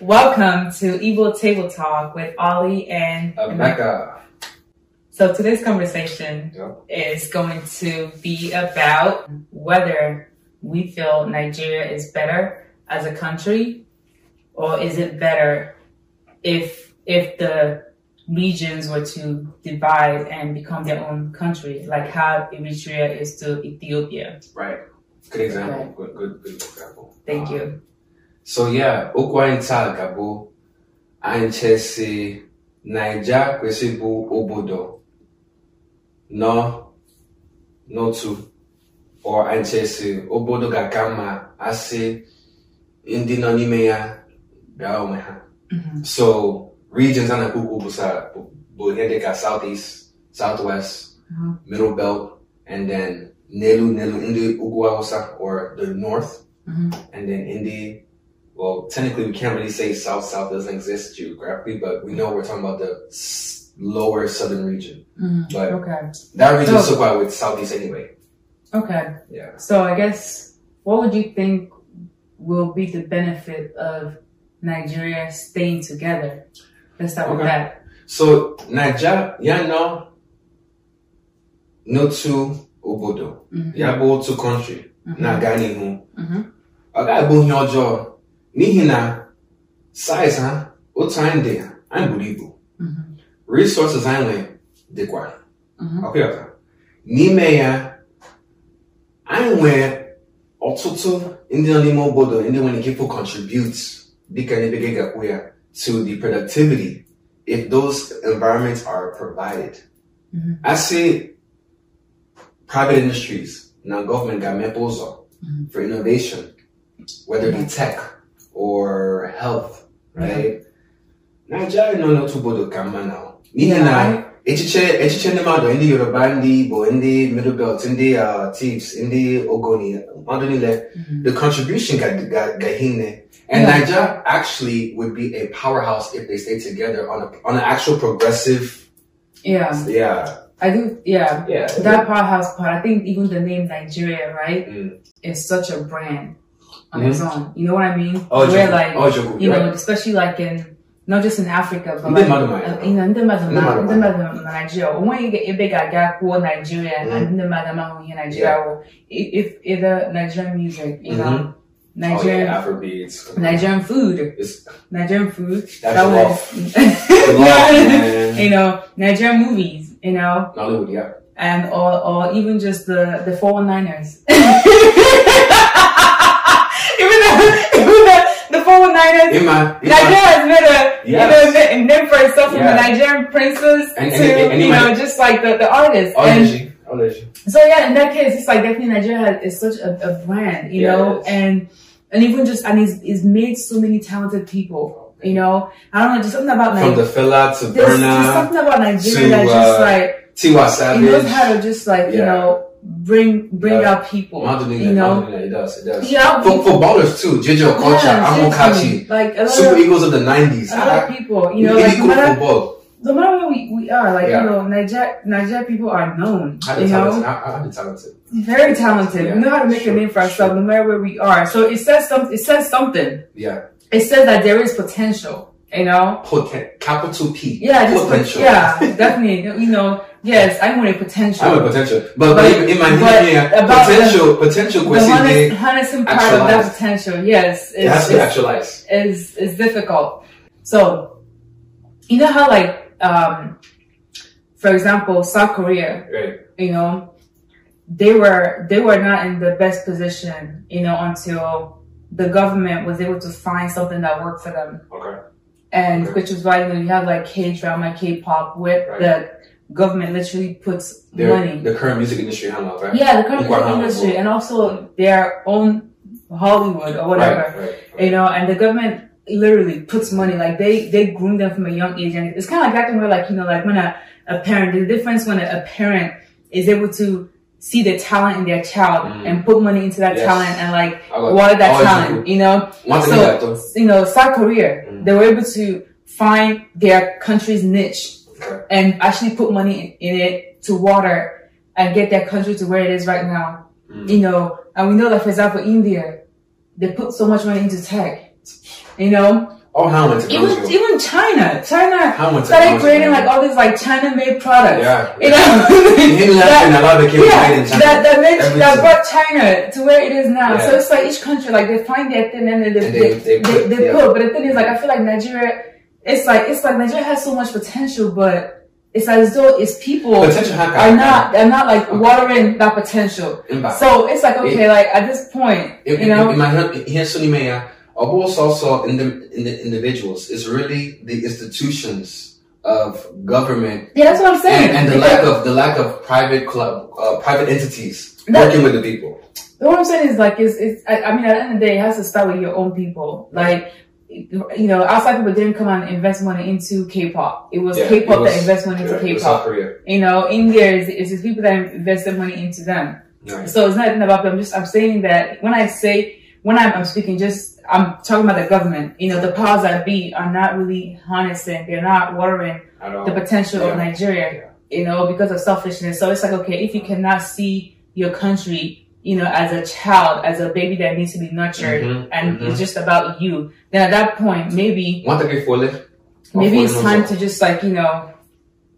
Welcome to Evil Table Talk with Ollie and Emeka. So today's conversation yep. is going to be about whether we feel Nigeria is better as a country or is it better if if the regions were to divide and become their own country, like how Eritrea is to Ethiopia. Right. Good example. Right. Good, good, good example. Thank um, you. So yeah, Ukwaintal Gabo, Anchesi, Niger, Kwesibu, Obodo, No, Notu, or Anchesi, Obodo Gakama, Asi, Indinonimea, Gaomeha. Mm-hmm. So, regions on the Kuku beside Buhende got southeast, southwest, uh-huh. middle belt, and then Nelu, Nelu, Indi, Uguawasa, or the north, uh-huh. and then Indi. Well, technically, we can't really say south south doesn't exist geographically, but we know we're talking about the lower southern region. mm But okay. that region so, is with southeast anyway. Okay. Yeah. So I guess what would you think will be the benefit of Nigeria staying together? Let's start okay. with that. So Naija, nọ Notu, Obodo. Mm-hmm. Ya bụ otu kọntrị na-aga n'ihu. Ọ ga-abụ ọjọọ n'ihi na size ha otu anyị dị anyị buru ibu. Mm-hmm. Resources anyị nwere dịkwa. Ọkpịọta. Mm-hmm. N'ime ya, anyị nwere ọtụtụ ndị nọ n'ime obodo ndị nwere ike ịpụ contribute dịka ebe gị ga-akwụ ya. to the productivity if those environments are provided. Mm-hmm. I private industries, na government got Mepozo mm-hmm. for innovation, whether it be tech or health, right? Nigeria no no tubo bodo kama now. Nihe na echiche echiche ndị mmadụ ndị yoruba ndị igbo ndị middle belt ndị uh, tips ndị ogoni mmadụ niile mhm. the contribution ga ihe nne and Naija niger actually would be a powerhouse if they stay together on, a, on an actual progressive yeah yeah I think, yeah, yeah that powerhouse part. I think even the name Nigeria, right, mm. is such a brand on mm its own. You know what I mean? Oh, Where, like, oh, you know, especially like in not just in Africa, but ndị mmadụ Nigeria ebe ga-aga e kwuo Nigeria ndị mmadụ amahụ either Nigerian music, mm-hmm. Nigerian, oh, Nigerian food, Nigerian food. Nigerian movies, you know, and or even just the the ers even though whole Nigerians. Ima, Ima. Nigeria has made a yes. you know, name for itself from yeah. the Nigerian princes and, to and, and, you know just like the, the artists. Ology. And, so yeah, in that case, it's like definitely Nigeria is such a, a brand, you yes. know, and and even just and it's, it's made so many talented people. You know, I don't know, just something about Nigeria. From the fella to Burna. There's something about Nigeria to, uh, that's just like Tiwa Savage. He knows how to just like, yeah. you know, bring bring uh, people. you know, modeling, it does, it does. Yeah, for, for ballers too. JJ Okocha, yeah, Amokachi, like Super Eagles of the 90s. A lot of people, you know, like, matter, no matter where we, are, like you know, Niger Niger people are known. You know, I, talented. Very talented. Yeah, we know how to make a name for ourselves, sure. no matter where we are. So it says something. It says that there is potential. You know, potent capital P. Yeah, just potential. yeah, definitely. You know, yes, I want a potential. I want potential, but, but, in my but head, yeah, about potential, the, potential. The harnessing part actualize. of that potential, yes, it has to actualize. Is is difficult. So, you know how like, um, for example, South Korea, right. you know, they were they were not in the best position, you know, until the government was able to find something that worked for them. Okay and which is why know you have like K drama, K pop, where right. the government literally puts Their, money. The current music industry hangout, right? Yeah, the current music industry, and also their own Hollywood or whatever, right, you know. And the government literally puts money like they they groom them from a young age, and it's kind of like back when like you know like when a, a parent the difference when a, a parent is able to see the talent in their child mm. and put money into that yes. talent and like water that talent, you know? One so, you know, South Korea, mm. they were able to find their country's niche and actually put money in, in, it to water and get their country to where it is right now. Mm. You know, and we know that for example, India, they put so much money into tech, you know? Oh, how much? Even even China, China Hanwha started creating like all these like China-made products. Yeah, you know, that, a lot of yeah, that that made, Everything. that brought China to where it is now. Yeah. So it's like each country like they find their thing and then they they, they, they, put, they, they yeah. put. But the thing is, like I feel like Nigeria, it's like it's like Nigeria has so much potential, but it's as though its people are not they're not like okay. watering that potential. So it's like okay, it, like at this point, it, you know, it, it, the in the individuals is really the institutions of government yeah, that's what I'm saying and, and the lack of the lack of private club uh, private entities working with the people what I'm saying is like it's, it's I, I mean at the end of the day it has to start with your own people like you know, outside people didn't come out and invest money into K-pop. It was yeah, K-pop it was, that invested money into yeah, K-pop. You know, India is it's just people that invested money into them. So it's not about them. just I'm saying that when I say when I'm, I'm, speaking, just I'm talking about the government. You know, the powers that be are not really harnessing. They're not watering the potential yeah. of Nigeria. Yeah. You know, because of selfishness. So it's like, okay, if you cannot see your country, you know, as a child, as a baby that needs to be nurtured, mm-hmm. and mm-hmm. it's just about you, then at that point, maybe one three four Maybe it's time to just like you know,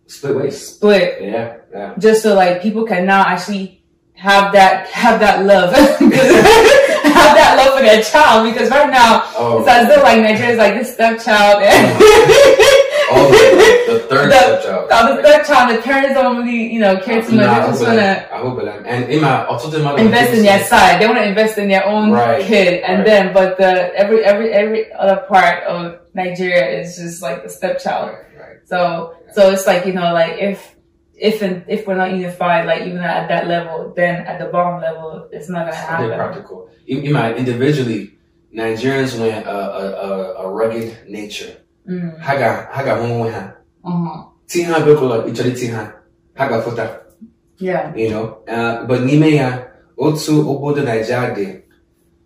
split ways. Split. Yeah. yeah. Just so like people can now actually have that have that love. have that love for their child because right now oh. it's as though like is like this stepchild and oh, the, the third the, stepchild. The the third child, the parents don't really, you know, care too much. Nah, they just wanna. I hope like, and in my, also in my invest in their side. They wanna invest in their own right, kid, and right. then but the every every every other part of Nigeria is just like the stepchild. Right. So so it's like you know like if if and if we're not unified, like even at that level, then at the bottom level, it's not gonna happen. They're practical. You, you might individually, Nigerians went a, a, a, rugged nature. Mm. Haga haga mumu ha. Uh-huh. Tiha bekola ichari ha haga fota. Yeah. You know, uh, but nime ya otu obodo Nigeria de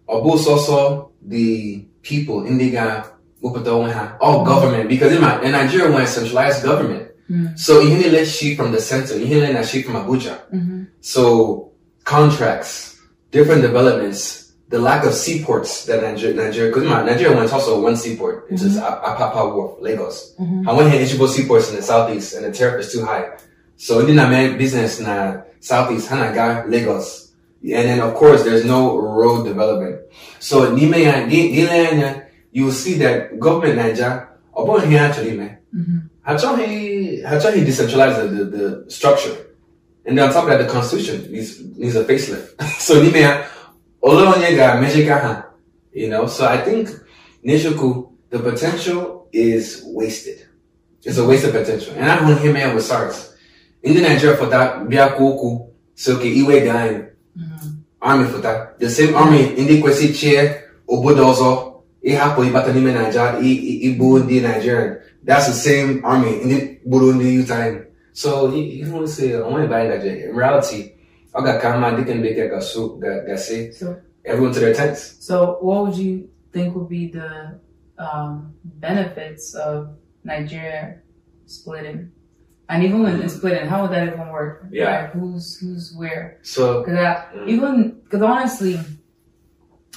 ọ so the people ndị ga wepụta onwe oh, ha, all government, because in, my, in Nigeria we're a centralized government. Mm. So inhile she from the center, inhile na she from Abuja. Mm-hmm. So contracts, different developments, the lack of seaports that Nigeria, Nigeria, because Nigeria talk also one seaport, it's mm-hmm. just Apapa Wharf, Lagos. Mm-hmm. I went here Ichibo seaports in the southeast and the tariff is too high. So in the business na southeast, Hanaga, Lagos. And then of course there's no road development. So Nime, you will see that government Nigeria, upon here actually, man. Mm-hmm. Hachong, Hachong, decentralized the, the, the structure. And then on top of that, the constitution needs, needs a facelift. so, you know, so I think Nishoku, the potential is wasted. It's a waste of potential. And I don't hear man with SARS. In the Nigeria for that, Biakuku, Soke, Iwe Gain, mm-hmm. army for that. The same army, ọzọ Chair, Obodozo, Ihapo, n'ime Nigeria, Ibu, the Nigerian. that's the same army in gburu ndị Yuta in. So ihe say sị onwe ebe anyị gaje in reality ọ ga ka mma dịka ndị bekee ga-asụ gasị everyone to their tents. So what would you think would be the um, benefits of Nigeria splitting? And even when it's split, how would that even work? Yeah. Like who's who's where? So because mm. even because honestly,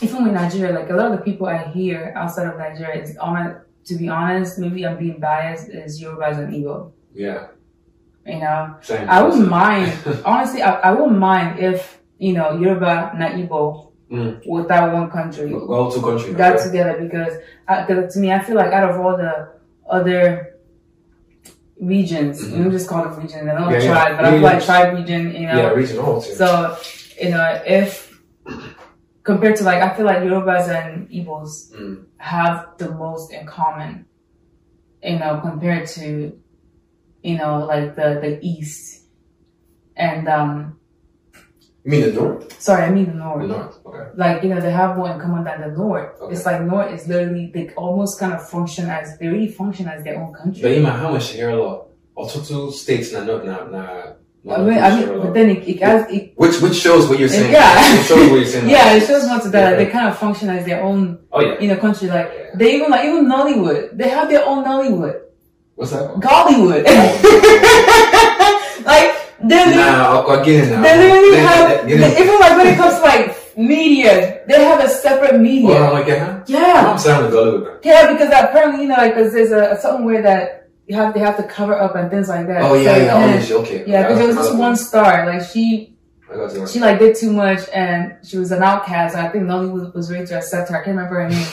even with Nigeria, like a lot of the people I hear outside of Nigeria is on to be honest, maybe I'm being biased, is yorubas Resident Evil. Yeah. You know, Same I wouldn't mind. honestly, I, I wouldn't mind if you know Yoruba, not Igbo, mm. with that one country. Well, two countries got okay. together because, uh, to me, I feel like out of all the other regions, mm-hmm. we just call it region, I don't yeah, tribe, yeah. but I try like tribe region. You know, yeah, region also. So you know, if compared to like I feel like Yorubas and Igbos mm. have the most in common, you know, compared to you know like the the East and um. You mean the North? Sorry, I mean the North. The North, okay. Like you know they have more in common than the North. Okay. It's like North is literally they almost kind of function as they really function as their own country. But you know how much here lot. Ọtụtụ steeti na na na I mean, I mean, but then it, it, has, it which which shows what you're saying. Yeah, it shows what you're saying. yeah, it shows not that yeah, they kind of function as their own. Oh yeah. in a country like yeah. they even like even Nollywood, they have their own Nollywood. What's that? Called? Gollywood. like they nah, I'll, get it now. They literally then, have then, then, even like when it comes to like media, they have a separate media. Oh, like yeah. Uh-huh. Yeah. I'm sounding Gollywood. Yeah, because apparently you know like there's a, a something where that you have they have to cover up and things like that. Oh yeah, so, yeah, then, oh, okay. Yeah, because there was this one star, like she she like did too much and she was an outcast and I think Nolly was, was ready to accept her. I can't remember her name.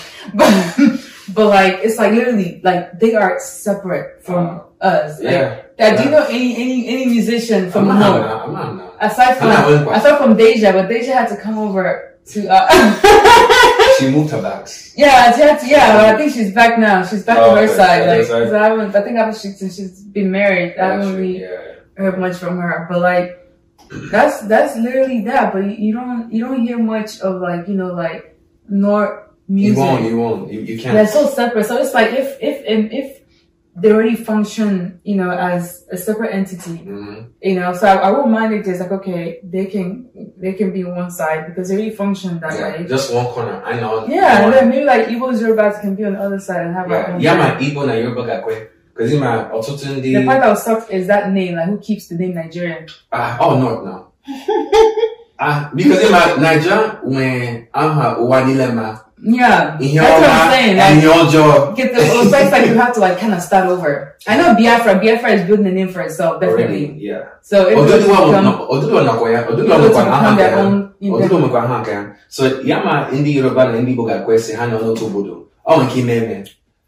But but like it's like literally like they are separate from uh, us. Like, yeah. That, yeah. do you know any any any musician from I'm not, no, I'm not, I'm not. Aside from aside from Deja, but Deja had to come over to uh She moved her back. Yeah, she had to, I think she's back now. She's back oh, to her okay. side. Like, cause I I think after she, since she's been married, I haven't really yeah. heard much from her. But like, that's, that's literally that. But you don't, you don't hear much of like, you know, like, nor music. You won't, you won't, you, you can't. They're so separate. So it's like, if, if, if they already function, you know, as a separate entity, mm-hmm. you know, so I, I won't mind if there's like, okay, they can, they can be one side because they already function that yeah, way. Just one corner. I know. Yeah. And then maybe like Igbo Yorubas can be on the other side and have yeah. like one. Yeah, my Igbo na Yoruba gakwe. Cause in my ọtụtụ ndị... The part that sucks is that name, like who keeps the name Nigerian? Ah, uh, oh no, no. Ah, uh, because in my Nigeria, when I'm her Yeah, in your that's what I'm saying. Like, in your job, get the have to like kind of start over. I know Biafra. Biafra is building a name for itself, definitely. Really? Yeah. So it will become So yama Yoruba na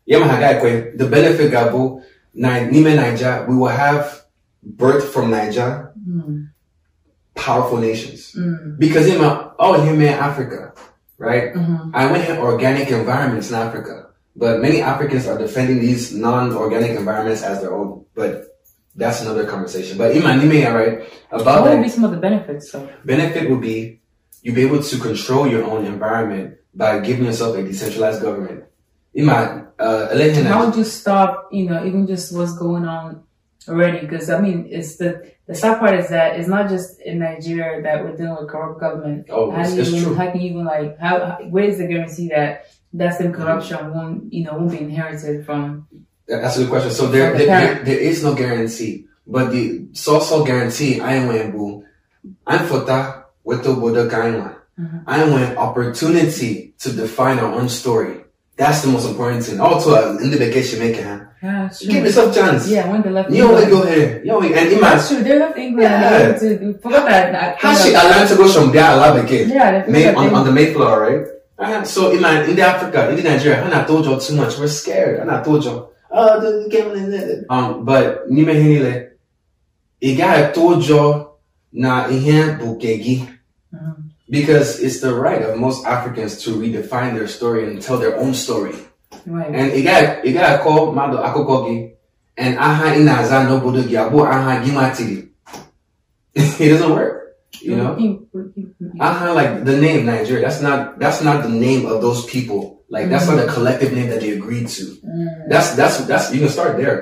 Yama The benefit ga n'ime Naija we will have birth from Naija. Hmm. Powerful nations. Mm. Because oh him Africa. right? Mm-hmm. I went in organic environments in Africa, but many Africans are defending these non-organic environments as their own. But that's another conversation. But Iman, you all right? About what would be some of the benefits? so Benefit would be you be able to control your own environment by giving yourself a decentralized government. Iman, uh, How would you stop? You know, even just what's going on already because I mean it's the the sad part is that it's not just in Nigeria that we're dealing with corrupt government. Oh, how it's, it's even, true. How can you even like how, how where is the guarantee that that same corruption mm-hmm. won't you know won't be inherited from? That's a good question. So there the there, there is no guarantee, but the so-so guarantee I am boo. I'm fota with the Buddha Gainwa. I mm-hmm. want opportunity to define our own story. That's the most important thing. Also, in the Yeah, true. Give yourself a chance. Yeah, when they left you England. You don't go here. You and That's true. They left England. Yeah. To, forgot that. that How she allowed go from there Yeah. on, the Mayflower, right? Uh, so, in Africa, in the Nigeria, told you too much. We're scared. told you, oh, the game Um, but, na ihe bụ nke gị. because it's the right of most Africans to redefine their story and tell their own story. Right. And ị ga ị ga akọ mmadụ akụkọ and aha Inaza na-aza n'obodo aha gị It doesn't work. You know? Mm, mm, mm, aha like the name Nigeria, that's not that's not the name of those people. Like that's mm -hmm. not a collective name that they agreed to. Mm. That's that's that's you can start there.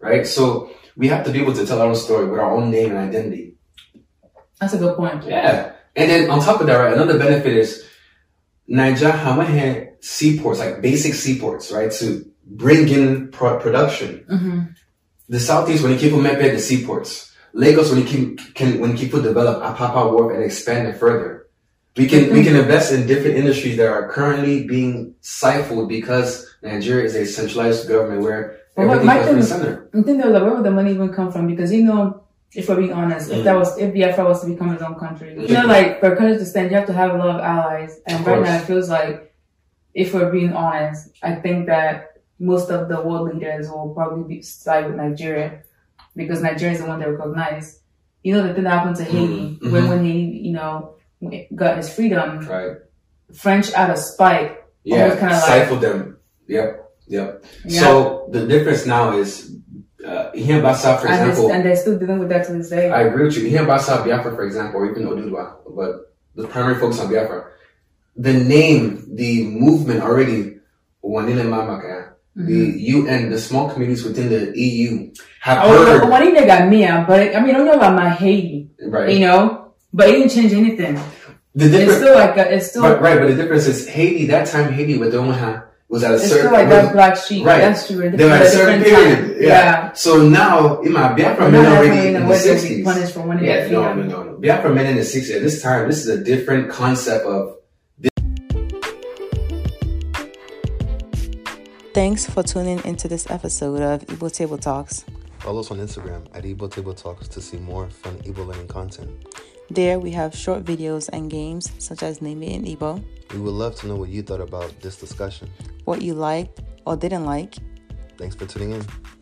Right? So we have to be able to tell our own story with our own name and identity. That's a good point. Yeah. And then on top of that, right, another benefit is Niger Hama seaports, like basic seaports, right, to bring in pro- production. Mm-hmm. The Southeast, when you keep Mepe, the seaports. Lagos, when you can, can when people develop Apapa work and expand it further. We can mm-hmm. we can invest in different industries that are currently being stifled because Nigeria is a centralized government where well, everything comes from the center. I think though, like, where would the money even come from? Because you know If we're being honest, if that was if Biafra was to become its own country, you know, like for a country to stand, you have to have a lot of allies. And of right course. now, it feels like, if we're being honest, I think that most of the world leaders will probably be side with Nigeria because Nigeria is the one they recognize. You know, the thing that happened to Haiti mm-hmm. when mm-hmm. he you know, got his freedom, right? French out of spite, yeah, kind of stifled like, them. Yep, yep. Yeah. So the difference now is uh, Ihe Basa, for and example. and they're still dealing with that to this day. I agree with you. Ihe Basa, Biafra, for example, or even Odudwa, but the primary focus on Biafra. The name, the movement already, Wanile Mamaka, mm the mm-hmm. UN, the small communities within the EU have oh, heard. Oh, Wanile got me but I mean, I don't know about my Haiti. Right. You know? But it didn't change anything. The difference, it's still like a, it's still but, right, but the difference is Haiti. That time Haiti with Omaha, was at a it's certain like that black sheep. Right. That's true. were at a certain period. Yeah. yeah. So now in my Biafra men already in the sixties. s for Yeah, no, no, no, no. Biafra men in the sixties at this time, this is a different concept of Thanks for tuning into this episode of Igbo Table Talks. Follow us on Instagram at Igbo Table Talks to see more fun Igbo learning content. There we have short videos and games such as Name It Ibo. Igbo. We would love to know what you thought about this discussion, what you liked or didn't like. Thanks for tuning in.